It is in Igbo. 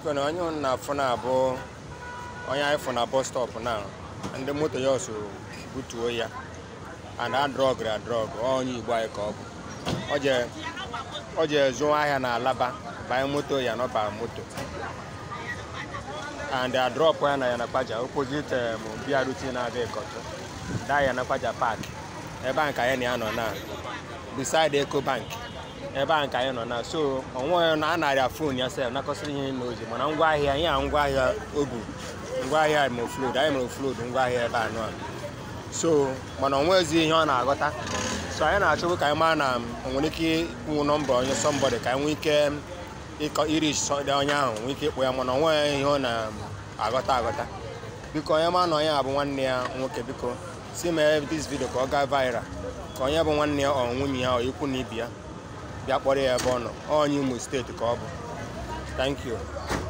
biko na onye ụnụ na-afụ abụ onye anyị fụ na bọs stọpụ na ndị moto ya ọsọ butuo ya and adrọgri adrọg onye igbo anyị ka ọ bụ o je zụọ ahịa na alaba banye moto ya nọba moto and adrọpụ ya na yanakpaja opposite mbia um, rute na-abịa ịkọtụ da yanakpaja paakị, ebe a ka ya na-anọ na eko Ecobank ebe a ka anyị nọ na so onwe na a fon ya sef nakọsịrị ihe na oji mana ngwaahịa ya a ngwaahịa obu ngwaahịa ma oflood anyị mere oflood ngwaahịa ebe anọ so mana onwezi ihe ọ na-aghọta so anyị na-achọbụ ka anyị maa na nwere ike ịkwụ nọmba onye sọmbọdị ka anyị nwee ike ịkọ iri sọdị onye ahụ nwee ike ịkpụ ya mana onwe ihe ọ na-aghọta aghọta biko onye ma na onye abụ nwanne ya nwoke biko si mee dis vidio ka ọ gaa viral ka onye bụ nwanne ya ọ nwunye ya ọ ikwu na ibi ya bịa kpọrọ ya ebe ọ nọ onye Imo steeti ka ọ bụ thank you